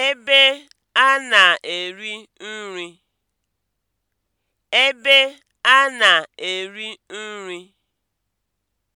ebe a na-eri nri